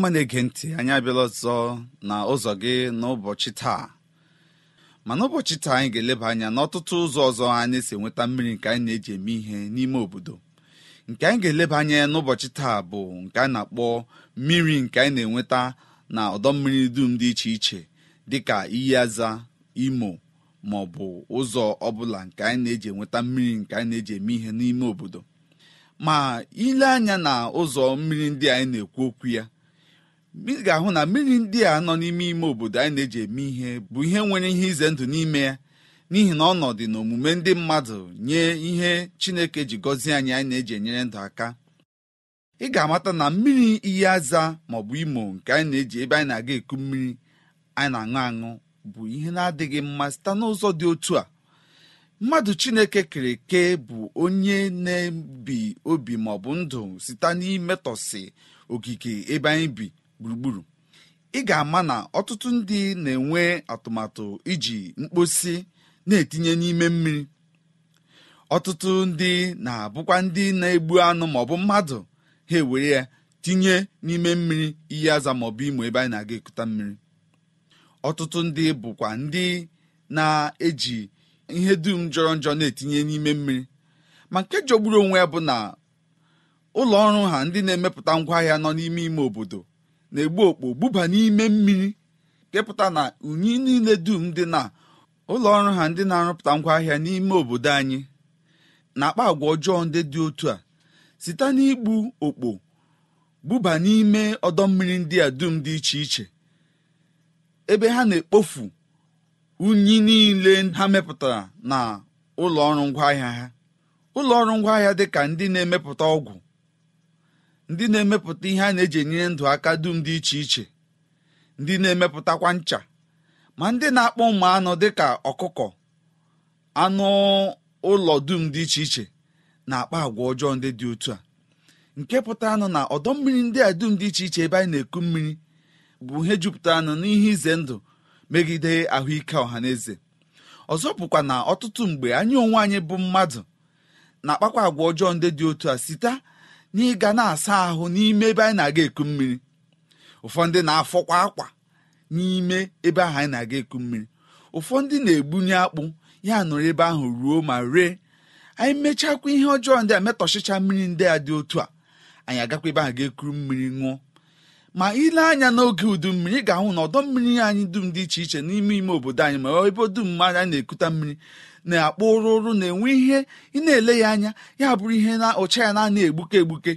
ọma na-ege ntị anyị abịala ọzọ na ụzọ gị n'ụbọchị taa ma n'ụbọchị taa anyị ga-eleba anya n'ọtụtụ ụzọ ọzọ anyị si enweta mmiri nke anyị na-eji eme ihe n'ime obodo nke anyị ga-eleba anya n'ụbọchị taa bụ nke a na-akpọ mmiri nke anyị na-enweta na ọdọ mmiri dum dị iche iche dịka iyi aza imo ma ọ bụ ụzọ ọbụla nke anyị na-eji enweta mmiri nke anyị na-eji eme ihe n'ime obodo ma ile anya na ụzọ mmiri ndị anyị na-ekwu okwu ya ị ga-ahụ na mmiri ndị a nọ n'ime ime obodo anyị na-eji eme ihe bụ ihe nwere ihe ize ndụ n'ime ya n'ihi na ọnọdụ na omume ndị mmadụ nye ihe chineke ji gọzie anyị anyị na-eji enyere ndụ aka ị ga-amata na mmiri iyi aza maọbụ imo nke anyị na-eji ebe anyị na-aga eku mmiri anyị na-aṅụ aṅụ bụ ihe na-adịghị mma site n'ụzọ dị otu a mmadụ chineke kere eke bụ onye na-ebi obi maọbụ ndụ site n'imetọsị ogige ebe anyị bi gburugburu ị ga-ama na ọtụtụ ndị na-enwe atụmatụ iji mkposi na-etinye n'ime mmiri ọtụtụ ndị na-abụkwa ndị na-egbu anụ maọbụ mmadụ ha ewere ya tinye n'ime mmiri iyi aza maọbụ imo ebe anyị na-aga ekuta mmiri ọtụtụ ndị bụkwa ndị na-eji ihe dum jọrọ njọ na-etinye n'ime mmiri ma nke jọgburu onwe ya bụ na ụlọ ọrụ ha ndị na-emepụta ngwaahịa nọ n'ime ime obodo na-egbu okpo buba n'ime mmiri kepụta na unyi niile dum dị na ụlọọrụ ha ndị na-arụpụta ngwaahịa n'ime obodo anyị na-akpa agwa ọjọọ ndị dị otu a site n'igbu okpo buba n'ime ọdọ mmiri ndị a dum dị iche iche ebe ha na-ekpofu unyi niile ha mepụtara na ụlọ ọrụ ngwaahịa ha ụlọ ọrụ ngwaahịa dị ka ndị na-emepụta ọgwụ ndị na-emepụta ihe a na-eji enyere ndụ aka dum dị iche iche ndị na-emepụtakwa ncha ma ndị na-akpọ ụmụ anụ dịka ọkụkọ anụ ụlọ dum dị iche iche na-akpa agwa ọjọọ ndị dị otu a nke pụtara nụ na ọdọ mmiri ndị a dum dị iche iche ebe anyị na-eku mmiri bụ ihe jupụtara nụ n'ihe ize ndụ megide ahụike ọha na eze ọzọ bụkwa na ọtụtụ mgbe anyị onwe anyị bụ mmadụ na-akpakwa agwa ọjọọ ndị dị otu a site n'ịga na-asa ahụ n'ime ebe anyị na-aga eku mmiri ụfọdụ na-afọkwa akwa n'ime ebe ahụ anyị na-aga eku mmiri ụfọdụ na-egbunye akpụ ya nọrọ ebe ahụ ruo ma ree anyị mechakwa ihe ọjọọ ndị a metọchicha mmiri ndị a dị otu a anyị agakwa ebe ahụ ga-ekuru mmiri ṅụọ ma ile anya n'oge udu mmiri ga-ahụ na ọdọ mmiri anyị dum dị iche iche n'ime ime obodo anyị ma ebe dum anyị na-ekute mmiri na-akpọ ụrụ na-enwe ihe ị na-ele ya anya ya bụrụ ihe na ụcha ya na-ana egbuke egbuke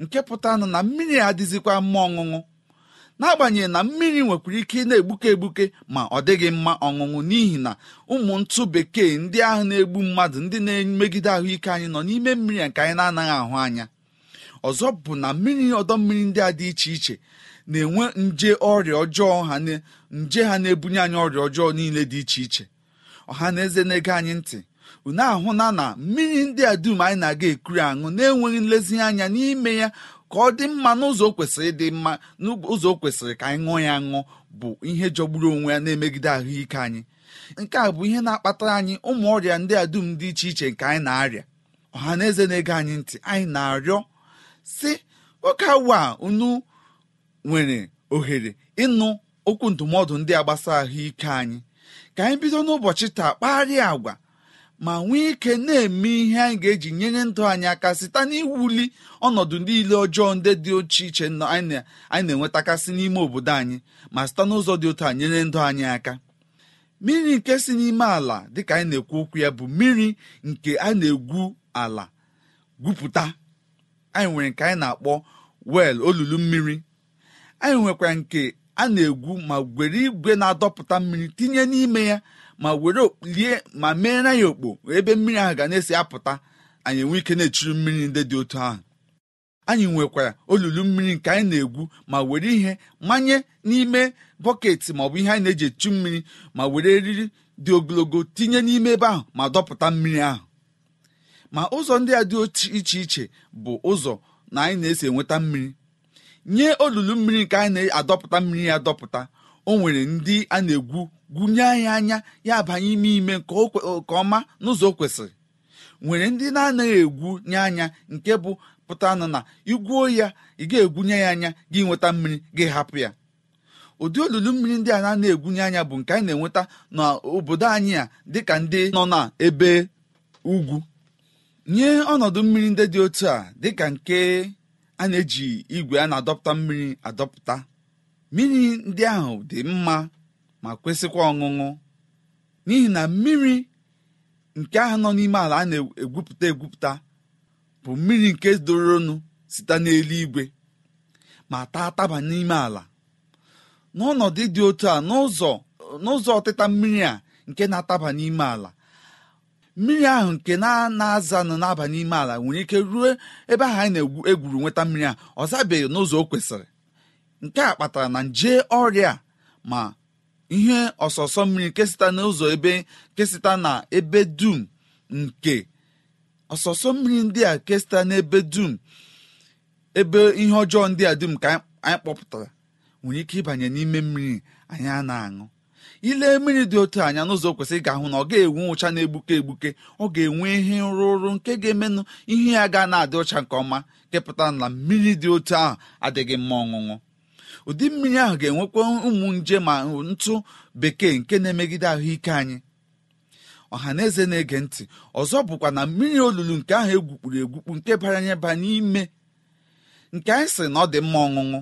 nke pụtanụ na mmiri adịzikwa mma ọṅụṅụ n'agbanyeghị na mmiri nwekwara ike ị na-egbuke egbuke ma ọ dịghị mma ọṅụṅụ n'ihi na ụmụ ntụ bekee ndị ahụ na-egbu mmadụ ndị na-emegide ahụike anyị nọ n'ime mmiri a nke anyị na-anaghị ahụ anya ọzọ bụ na mmiri ọdọ mmiri ndị a dị iche iche na-enwe nje ọrịa ọjọọ ha nje ha na-ebunye anyị ọrịa ọjọọ niile dị iche iche ọha na eze na-ege anyị ntị unu ahụna na mmiri ndị a dum anyị na-aga ekuri aṅụ na-enweghị nlezianya n'ime ya ka ọ dị mma n'ụzọ kwesịrị dị mma n'ụzọ kwesịrị ka anyị ṅụọ ya ṅụ bụ ihe jọgburu onwe ya na-emegide ahụike anyị nke a bụ ihe na-akpatara anyị ụmụ ọrịa ndị a dum dị iche iche nke anyị na-arịa ọha na eze na-ege anyị ntị anyị na-arịọ si oke awa unu nwere ohere ịnụ okwu ndụmọdụ ndị a gbasara ahụike anyị ka anyị bido n'ụbọchị taa kparịa agwa ma nwee ike na-eme ihe anyị ga-eji nyere ndụ anyị aka site n'iwuli ọnọdụ niile ọjọọ ndị dị oche iche anyị na-enwetakasị n'ime obodo anyị ma site n'ụzọ dị otu a nyere ndụ anyị aka mmiri nke si n'ime ala dịka anyị na-ekwu okwu ya bụ mmiri nke a na-egwu ala gwupụta anyị nwere nke anyị na-akpọ wel olulu mmiri anyị nwekwara nke a na-egwu ma were igwe na-adọpụta mmiri tinye n'ime ya ma were okpulie ma mee ya okpo ebe mmiri ahụ ga na-esi apụta anyị enwe ike na-echiri mmiri ndị dị otu ahụ anyị nwekwara olulu mmiri nke anyị na-egwu ma were ihe manye n'ime bọket maọbụ ihe anyị na-eji echu mmiri ma were eriri dị ogologo tinye n'ime ebe ahụ ma dọpụta mmiri ahụ ma ụzọ ndị a dị iche iche bụ ụzọ na anyị na-esi enweta mmiri nye olulu mmiri nke anyị na-adọpụta mmiri ya adọpụta o nwere ndị a na-egwu gwunye anyị anya ya abanye ime ime nke ọma n'ụzọ o kwesịrị nwere ndị na-anaghị egwu nye anya nke bụ pụta na na igwuo ya ị ga-egwunye ya anya gị nweta mmiri gị hapụ ya ụdị olulu mmiri ndị a na-egwunye anya bụ nke anyị na-enweta n'obodo anyị a dịka ndị nọ n'ebe ugwu nye ọnọdụ mmiri ndị dị otu a dịka nke a na-eji igwe a na-adọpụta mmiri adọpụta mmiri ndị ahụ dị mma ma kwesịkwa ọṅụṅụ n'ihi na mmiri nke ahụ nọ n'ime ala a na-egwupụta egwupụta bụ mmiri nke doronu site n'eluigwe ma taa taba n'ime ala n'ọnọdụ dị otu a n'ụzọ ọtịta mmiri a nke na-ataba n'ime ala mmiri ahụ nke na-azanụ na-aba n'ime ala nwere ike ruo ebe ahụ anyị na-egwuru nweta mmiri a ọ zabeghị n'ụzọ o kwesịrị nke a kpatara na nje ọrịa ma ihe ọsọsọ mmiri nke n'ụzọ ebe nke na ebe dum nke ọsọsọ mmiri ndị a kesịta n'ebe dum ebe ihe ọjọọ ndị a dum ka anyị kpọpụtara nwere ike ịbanye n'ime mmiri anyị a na-aṅụ ile mmiri dị otu anya n'ụzọ kwesịrị ga-ahụ na ọ ga-enwe ụcha na-egbuke egbuke ọ ga-enwe ihe nrụrụ nke ga-emenụ ihe ya ga na-adị ụcha nke ọma kepụta na mmiri dị otu ahụ adịghị mma ọṅụṅụ ụdị mmiri ahụ ga-enwekwa ụmụ nje ma ntụ bekee nke na-emegide ahụike anyị ọha na eze na-ege ntị ọzọ bụkwa na mmiri olulu nke ahụ egwukpuru egwukpu nke ba n'ime nke anyị sị na ọ dị mma ọṅụṅụ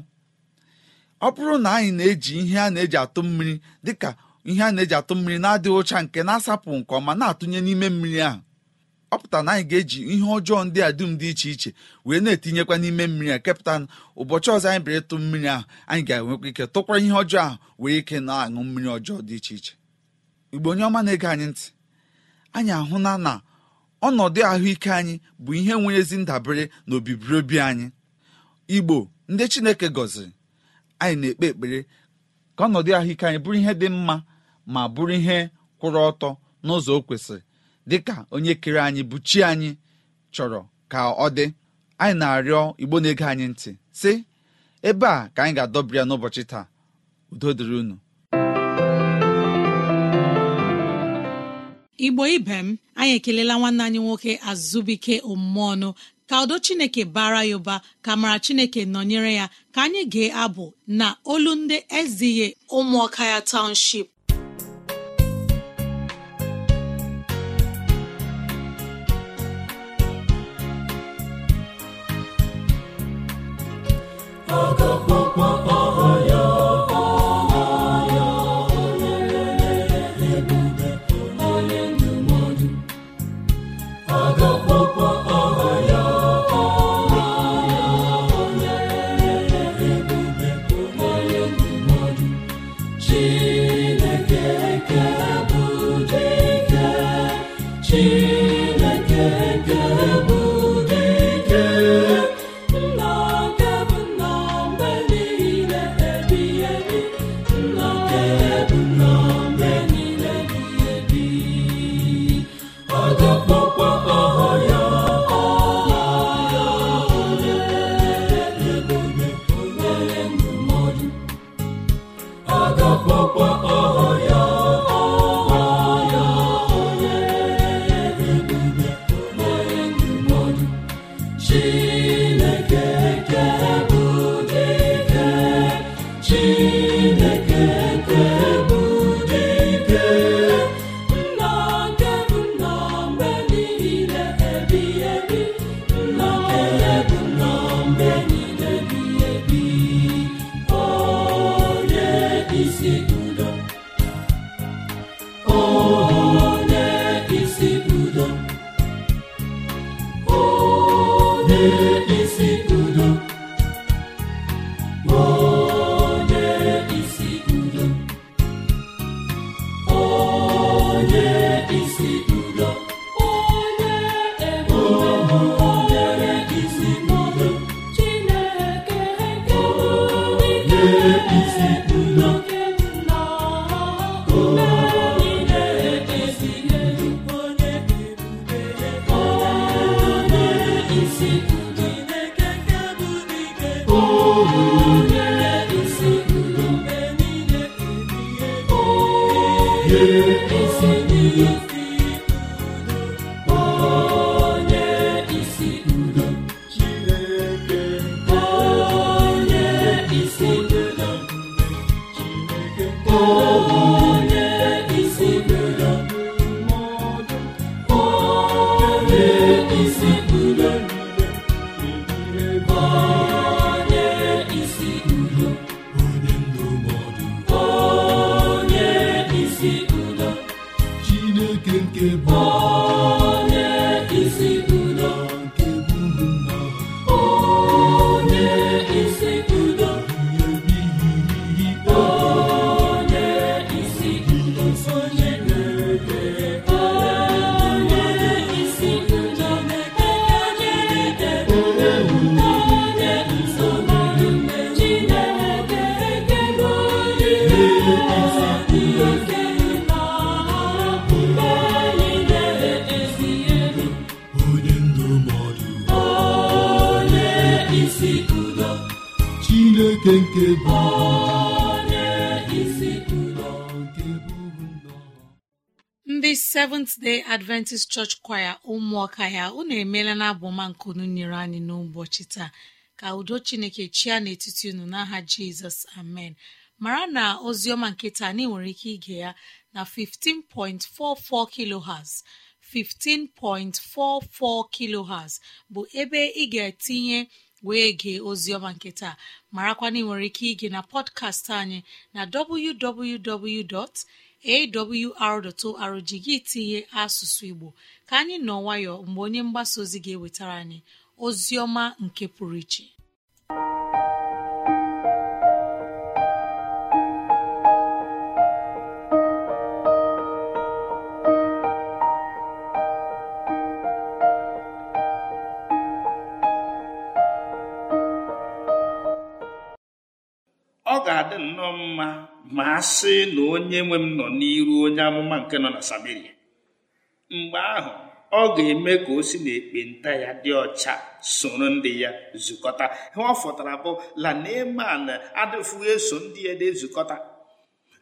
ọ bụrụ na anyị na-eji ihe a na-eji atụ mmiri dịka ihe a na-eji atụ mmiri na-adịghị ụcha nke na-asapụ nke ọma na-atụnye n'ime mmiri ahụ ọ na anyị ga-eji ihe ọjọọ ndị a dum dị iche iche wee na-etinyekwa n'ime mmiri a kepụta ụbọchị ọzọ anyị bịara ịtụ mmiri ahụ anyị ga-enwekwa ike tụkwa ihe ọjọọ ahụ wee ike na-aṅụ mmiri ọjọọ dị iche iche igbo onye ọma na-ege anyị ntị anyị ahụla na ọnọdụ ahụike anyị bụ ihe nwere ezi ndabere na obibiri obi anyị igbo ndị chineke gọziri anyị na-ekpe ekpere ka ọnọdụ ahụike anyị bụrụ ihe dị mma ma bụrụ ihe kwụrụ ọtọ n'ụzọ o kwesịrị dịka onye kere anyị bụ chi anyị chọrọ ka ọ dị anyị na-arịọ igbo na-ege anyị ntị sị ebe a ka anyị ga-adọbiri ya n'ụbọchị taa udo dịrị unu igbo ibe m anyị ekelela nwanne anyị nwoke azụbike omume ọnụ ka udo chineke bara ya ụba ka mara chineke nọnyere ya ka anyị gee abụ na olu ndị ezighi ụmụọka ya township Seventh Day Adventist Church Choir ụmụọka ya unu emeela na abụma nkunu nyere anyị n'ụbọchị taa ka udo Chineke chia n'etiti unu n'aha Jizọs amen mara na ozioma ọma nke taa anyị nwere ike ige ya na 15.44 kilohertz 15.44 kilohertz bụ ebe ị ga-etinye wee gee ozioma nke taa marakwana ị nwere ike ige na pọdkast anyị na www. awr.org gị tinye asụsụ igbo ka anyị nọ nwayọ mgbe onye mgbasa ozi ga-ewetara anyị ozi ọma nke pụrụ iche ọ ga-adị nnọọ mma ma a sị na onye nwe m nọ n'iru onye amụma nke nọ na Sameria mgbe ahụ ọ ga-eme ka o si n'ekpenta ya dị ọcha soro ndị ya zukọta ha ọ fọtara bụ la Neeman eso ndị ya dị ezukọta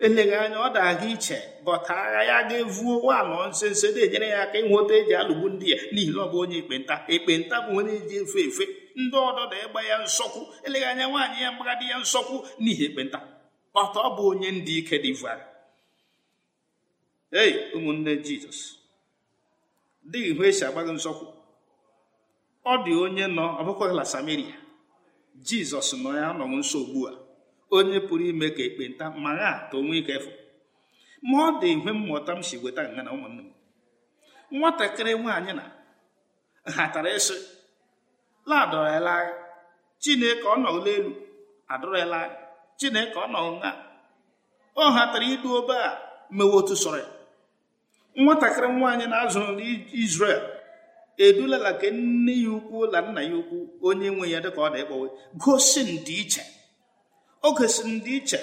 eleghị anya ọ daga iche bọta agha ya ga-evuo walọ nsenso na-enyere ya aka ịnweta eji alụgbu ndị ya n'ihi na ọ bụ onye ekpenta ekpenta bụ onye eji efe efe ndị ọdọ na-egba ya nsọkwu eleghị anya nwaanyị ya mgbagadi ya nsọkwu n'ihi ekpenta kpata ọ bụ onye ndị ike divine ei ụmụnne jizọs dịghị ihe esi agba gị nzọkwu ọ dị onye nọ ọbụkwaghịla samaria jizọs nọ ya nọwụ nso ugbu a onye pụrụ ime ka ekpenta ma ha ka onwe ike efu ma ọ dị ihe mmụta m si weta nga na ụmụnne m nwatakịrị nwaanyị na hatara ịsị ladọrọla chineke ọ nọgụla elu adọrọla agha chineke ọ nọ nha ọ hatara idu obe a mewe otu sọrọ nwatakịrị nwaanyị na-azụrụ n'Izrel edulala ka nne ya ukwu la nna ya ukwu onye nwe ya dịka ọ dị ịkpọwe gosi ndịiche o ndị iche.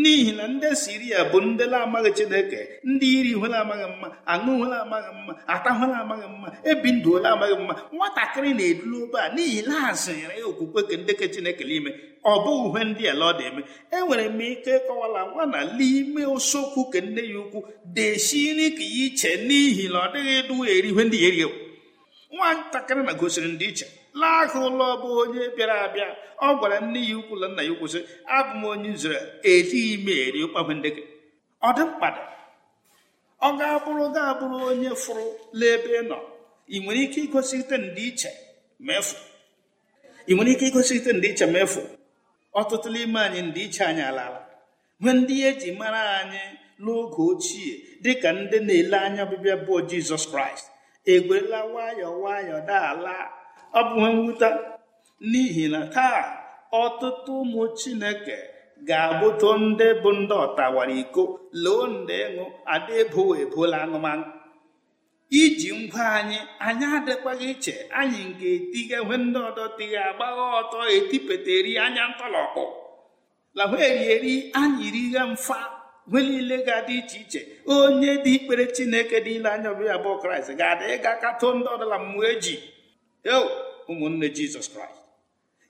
n'ihi na ndị siria bụ ndị na-amaghị chineke ndị iri hụla amaghị mma aṅụ hụla amaghị mma ata amaghị mma ebi ndụ hụla amaghị mma nwatakịrị na-edulu obe a n'ihi na ha ya okwukwe ke ndeke chineke n'ime ọ bụghị uhe ndị ala ọ dị enwere e m ike kọwala nwa na n'ime usokwu ke nne ya ukwu desiri ka ya iche n'ihi na ọ dịghị duwa eri ihe ndị ya erihe nwatakịrị na gosiri ndị iche laa aka ụlọ bụ onye bịara abịa ọ gwara nne ya ukwu na nna ya ukwu sị abụ m onye Izrel ejighị m eri ụkpagbu ndị gị ọ dị mkpa ọ ga-abụrụ ga-abụrụ onye fụrụ n'ebe ị nọ ị nwere ike igosite ndịiche ma ị nwere ike igosite ndịiche ma efu ọtụtụ n'ime anyị ndịiche anyị alaala nwee ndị eji mara anyị n'oge ochie dịka ndị na-ele anya ọbịbịa bụ Jizọs Kraịst egwerela nwayọọ nwayọọ daala abụghị mwute n'ihi na taa ọtụtụ ụmụ chineke ga abụtụ ndị bụ ndị ọtawara iko loo ndị ịṅụ ada ebowo ebola anụmanụ iji ngwa anyị anyị adịkwaghị iche anyị ga-etighe nwe ndị ọdọ tighe agbagha ọtọ eri anya ntọlọkpụ lahụ erieri anyị righe mfa nwe niile ga-adị iche iche onye dị ikpere chineke dị ile anya ọbịa bụ kraịst ga-adị ịga katoo ndị ọdọla mmụọ eji yo ụmụnne jizọs kraịst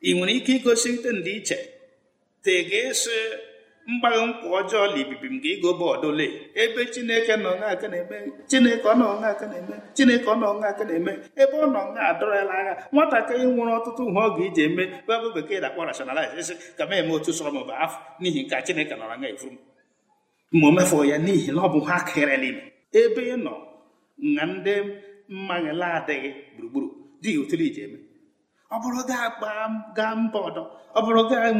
ị nwere ike igosite ndịiche te ga esi mgbaghị nkwa ọjọọ la ibibi m ga-ego bọọdụle ebe chineke nọ aka na-eme chineke ọ nọ aka na-eme chineke ọ nọ aka na-eme ebe ọ nọ nga adọrọla agha nwatakịrị nwere ọtụtụ ihe ọ ga-eji eme bụ bekee na-akpọ rationalize ka m eme otu sọrọ m bụ afọ n'ihi nke chineke nọrọ nga efuru m ma o ya n'ihi na ọ bụ ha kerela ebe ị nọ na ndị mmaghịla adịghị gburugburu dị otule iji eme ọ bụrụ gaa mba ọdọ ọ bụrụ gaa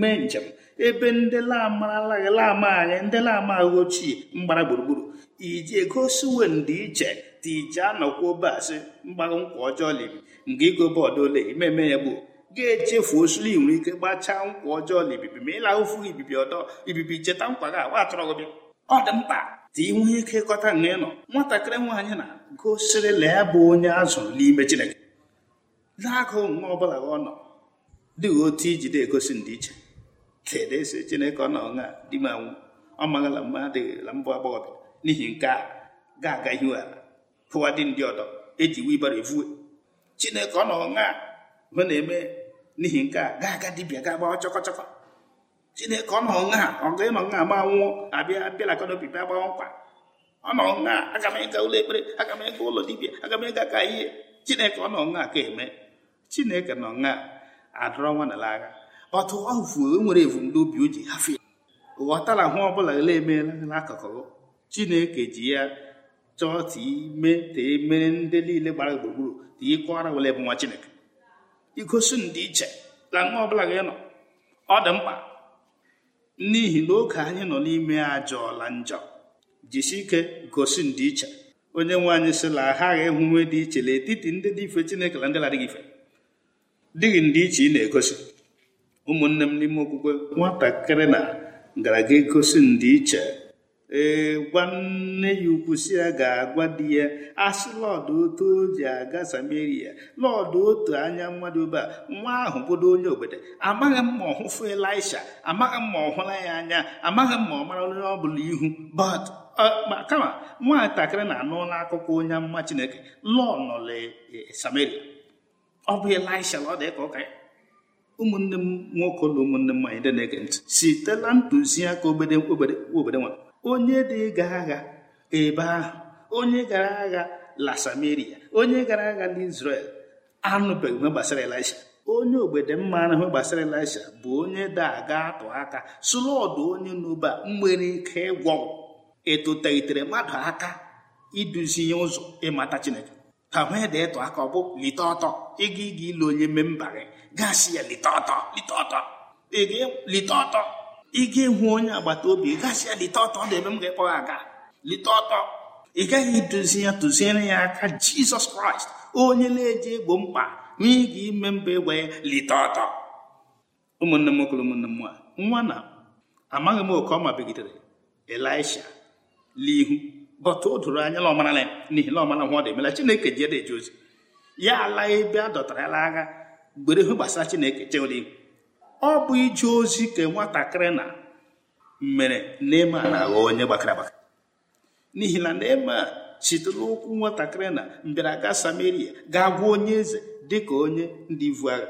mee njem ebe ndị lamaralaghị lama anyị ndị lama ahụ ochie mgbara gburugburu ije gosi uwe ndị iche dị iji anọkwa obe asị mgbarụ nkwa ọjọọ libi nga igobe ole imeme ya gbuo ga-echefu osuli nwere ike gbachaa nkwa ọjọọ libibi ma ịla ụfụ ibibi ọdọ ibibi cheta nkwa gị agwa atọrọ gị bịa ọ dị mkpa dị ike ịkọta nga nọ nwatakịrị nwaanyị na gosiri lee bụ onye azụrụ n'ime Chineke n'aka omume ọ bụla ọ nọ dị otu ijide egosi ndịiche kedu esi chineke ọ nọ na di m anwụ ọ maghịla mma la mbụ agbọghọbịa n'ihi nke a ga-aga ihu ala hụwa dị ndị ọdọ eji wibara evue chineke ọ nọ na hụ na-eme n'ihi nke a ga-aga dibịa ga-agbawa chọkọchọkọ chineke ọ nọ na ọ ga ịnọ na ma nwụọ abịa bịala ka n'obi bịa gbawa nkwa ọ nọ na aga m ịga ụlọ ekpere aga m ịga ụlọ dibịa aga m ịga ka ihe chineke ọ nọ na ka eme chineke nọ na adọrọ nwa na agha ọtụ ọfụ nwere evu obi o ji hafe ghọtara hụ ọbụla ele emeela n'akụkụ chineke ji ya chọọ time tee e mere ndị niile gbara gburugburu tie kọọra wele bụ nwa chineke igosi ndị iche na nwa ọbụla gị nọ ọ dị mkpa n'ihi na oge anyị nọ n'ime ajọọla njọ jisi ike gosi ndị iche onye nwe anyị sịla aghaghị ịhụ nwe dị iche n'etiti ndị dị ife chineke na ndị ladịghị ife dịghị ndị iche ị na-egosi ụmụnne m n'ime okwukwe nwatakịrị na ga egosi ndị iche ee gwa nne ya ukwu si ya ga-agwa di ya asị lọdụ otu o ji aga samaria lọdụ otu anya mmadụ ebe a nwa ahụ bụdo onye obodo amaghị m ma ọ elisha amaghị m ma ọ hụla ya anya amaghị m ma ọ mara onye ọ bụla ihu but uh, kama nwatakịrị na-anụla akụkọ onye mma chineke lọọ nọle e, samaria ọ bụ elisha ọ dị ka ụmụnne m nwoke na ụmụnne m nwanyị ndị na-ege ntị sitela ntụziaka obere obere nwa onye dị ga agha ebe ahụ onye gara agha la samaria onye gara agha n'izrel anụbeghị ihe gbasara elisha onye ogbede mma ahụ gbasara elisha bụ onye dị aga atụ aka sụrụ ọdụ onye n'ụba nwere ike ịgwọ ịtụtelitere mmadụ aka iduzi ya ụzọ ịmata chineke ha wee da ịtụ aka ọ bụ lite ọtọ ịga ịga ile onye memba gị gasị ya lite ọtọ lite ọtọ lite ọtọ ịga ịhụ onye agbata obi gasị ya lite ọtọ na ebe m ga-ekpọ ha aga lite ọtọ ị gaghị idozi ya tụziere ya aka jizọs kraịst onye na-eji egbo mkpa n'ịga ime mba egbe ya lite ọtọ ụmụnne m nwoke ụmụnne m nwa nwa na amaghị m oke ọma mabigidere elisha n'ihu bọta o doro anya na ọmara na n'ihi na ọmara nwa ọ dị emela chineke ji ede eje ozi ya ala ebe a dọtara ya n'agha gbere hụ gbasara chineke chewere igwe ọ bụ ije ozi ka nwatakịrị na mere nema na-aghọ onye gbakara agbakara n'ihi na nema sitere ụkwụ nwatakịrị na mbịaraga samaria ga gwa onye eze dịka onye dị ivu agha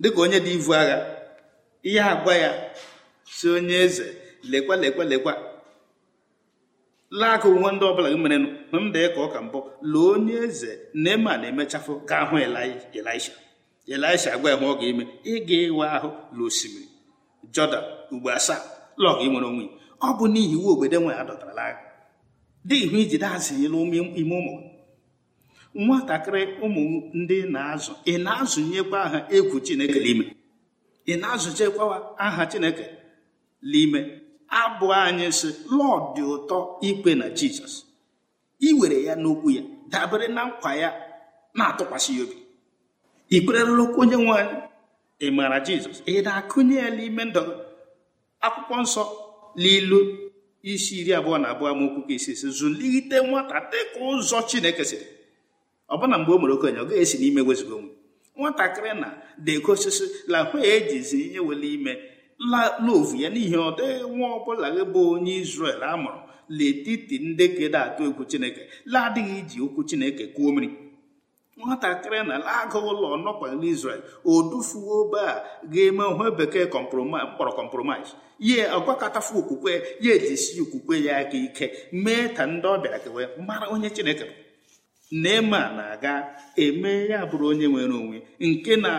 dịka onye dị ivu agha ihe agwa ya si onye eze lekwa lekwa lekwa laaka onwe ndị ọbụla gị merenụ m dee ka ọ ka mbụ lụọ onye eze na emechafụ ga hụ elisha elisha agwa ya ọ ga-eme ị ga-ewe ahụ la osimiri jọdan ugbo asaa lọg nwere onwe ọ bụ n'ihi iwu obodo nwe ya dọtara n'agha dị ihu iji dazịnyela n'ime ụmụ nwatakịrị ụmụ ndị na-azụ ị na-azụnyekwa aha egwu chineke n'ime ị na-azụchekwa aha chineke n'ime abụ anyị si lọd dị ụtọ ikpe na jizọs iwere ya n'okwu ya dabere na nkwa ya na-atụkwasị ya obi ị kwererela onye nwe anyị ị maara jizọs ị na-akụnye ya n'ime ndụ akwụkwọ nsọ n'ilu isi iri abụọ na abụọ amaokwu ka isi esi zụlite nwata dị ka ụzọ chineke siri ọbụna mgbe o mere okenye ọ gaghị esi n'ime wezigo onwe nwatakịrị na dekosisi la hụ ejizi ihe wele ime love ya n'ihi ọ dịghị nwa ọbụla gị bụ onye isrel a mụrụ letiti ndị kede atụ egwu Chineke ladịghị iji okwu Chineke kwuo mmiri nwatakịrị na agụ ụlọ nọkwa o odufuo be a ga-eme ohe bekee kpọrọ kọmpromis ye ọgwakọtafu okwukwe ya ejisi okwukwe ya aka ike mee ta ndị ọbịa kewe mara onye Chineke neman na-aga eme ya bụrụ onye nwere onwe nke na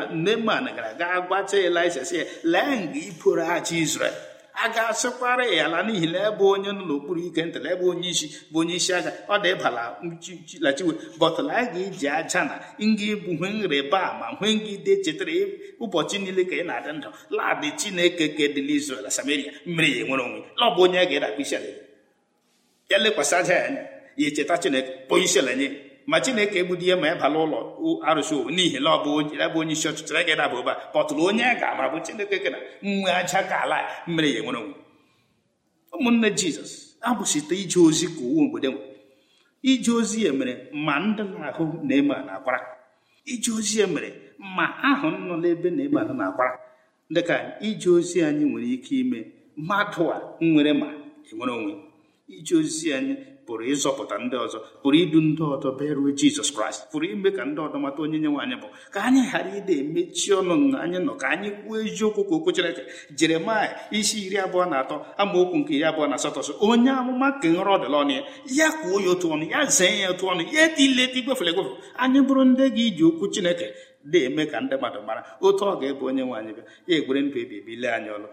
na gara aga gwacha elisa si ya lee nga iboro aja isrel a ga-asịkwara ya ala n'ihi na ebe onye nọ n'okpuru ike ntala ebe onye isi bụ onye isi agha ọ dị ịbala chilachiwe bọtụla a ga-eji aja na nga bụ hwe nrịba ma hwe ngide chetara ụbọchị niile ka ị na-adị ndụ di chineke ka edịla Samaria mmiri ya nwere onwe ọ bụ onye a ga-edakwa isi ya lekwasị aja ya anya ya echeta chineke bụ isi nye ma chineke egbudi ihe ma ị bala ụlọ arụsị n'ihi na ọ bụ ebe onye isi ọchịchị gị daba ụba kpọtụrụ onye ga-ama bụ chineke kena nwe aja ka ala mere ya nwere onwe ụmụnne jizọs abụsite ije ozi ka uwe mgbede nwe ije ozi ya mere ma ndị na-ahụ na-eme na-akwara ije ozi ya mere ma ahụ nọ n'ebe na-eme ahụ na-akwara dị ka ije ozi anyị nwere ike ime mmadụ a nwere ma enwere onwe ije ozi anyị pụrụ ịzọpụta ndị ọzọ pụrụ idu ndị ọzọ bịaruo jizọs kraịst pụrụ ime ka ndị ọzọ mata onye nye nwaanyị bụ ka anyị ghara ịda emechi ọnụ na anyị nọ ka anyị kwuo eziokwu ka okwu Chineke jeremaya isi iri abụọ na atọ amaokwu nke iri abụọ na asatọ sọ onye amụma ka nrọ ọdịla ọnụ ya ya kwuo ya otu ọnụ ya zee ya otu ọnụ ya etileti gwefere egwefe anyị bụrụ ndị gị iji okwu Chineke na-eme ka ndị mmadụ mara otu ọ ga-ebu onye nwaanyị bịa ya egwere ndụ ebibi lee anyị ọlụ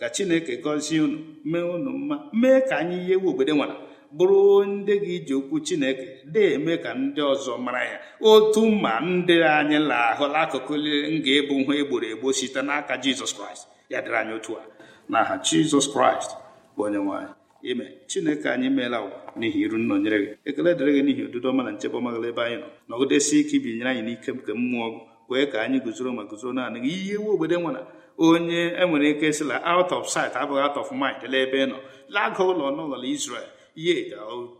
ka Chineke gọzie unu mee unu mma mee ka anyị ihe ewu obodo nwara bụrụ ndị gị ji okwu chineke na-eme ka ndị ọzọ mara ya otu mma ndị anyị lahụla akụkụ m ga-ebu nha egboro egbo site n'aka jizọs kraịst ya dịrị anyị otu a n'aha jizọs kraịst bụ onye nwanyị ime chineke anyị meela ụwa n'ihi iru nna onyere gị ekele dịrị gị n'ihi odudo ọma na nchebe ọma ebe anyị nọ nọgidesi ike ibinyere anyị n'ike nke mmụọ wee kwee ka anyị guzoro ma guzoro naanị gị ihe iwu obodo e nwere onye enwere ike sịla out of sight abụghị out of mind lee ebe ị nọ laga ụlọ n'ụlọ Israel ihe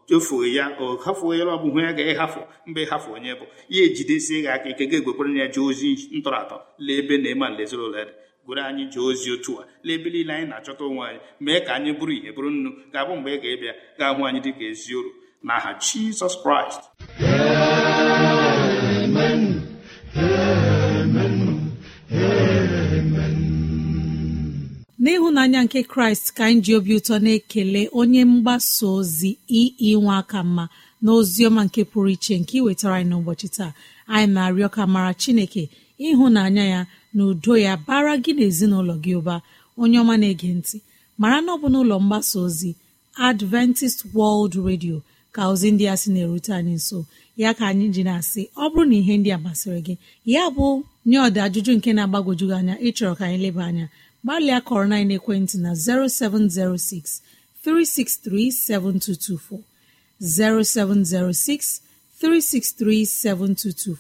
chefuo ya o hafuo ya ọbụ hụ ya e ga mgbe ị hafụ onye bụ ihe ejidesie gị aka ike ga-egwekwere ya jee ozi ntọratọ lee ebe na ịma nlezirola dị gwere anyị jee ozi otu a lee ebe niile anyị na-achọta onwe anyị mee ka anyị bụrụ ihe bụrụ nnu ga-abụ mgbe ị ga-ebịa ga-ahụ anyị dị ka ezi oru n'aha Jizọs Kraịst n'ịhụnanya nke kraịst ka anyị ji obi ụtọ na-ekele onye mgbasa ozi ii e e nwa aka mma na ọma nke pụrụ iche nke iwetara anyị n'ụbọchị taa anyị na-arịọ ka mara chineke ịhụnanya ya na udo ya bara gị na ezinụlọ gị ụba onye ọma na-ege ntị mara na ọ bụ ụlọ mgbasa ozi adventist world radio ka ozi ndị a sị na-erute anyị nso ya ka anyị ji na-asị ọ bụrụ na ihe ndị a masịrị gị ya bụ nye ọdị ajụjụ nke na agbagojugị anya ịchọrọ ka anyị leba anya gbalịa kọrọ na ekwentị na 0706 363 7224 0706 363 7224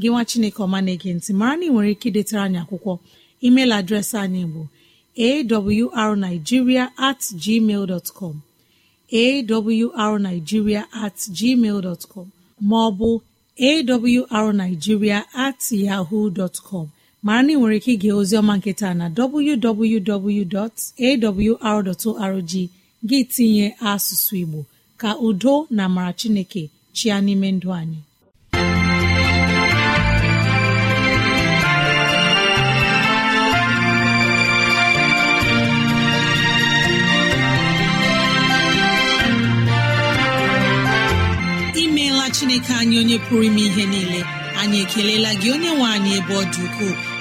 gị nwa Chineke ọma na-ege mara na ị nwere ike idetara anyị akwụkwọ email adreesị anyị bụ awrnigeria at gmail dot com awrnigeria at gmail dot com ma ọ bụ awrnigeria at yahoo dot com mara na ị nwere ike ige oziọma nketa na www.awr.org gị tinye asụsụ Igbo ka udo na amara Chineke chịa n'ime ndụ anyị imeela Chineke anyị onye pụrụ ime ihe niile anyị ekelela gị onye nwe anyị ebe ọ dị ukwuu.